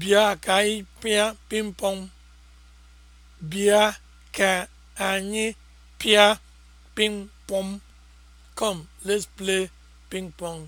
Bịa ka anyị pịa pịmpọn. Bịa ka anyị pịa pịmpọn. kom let's play ping pong.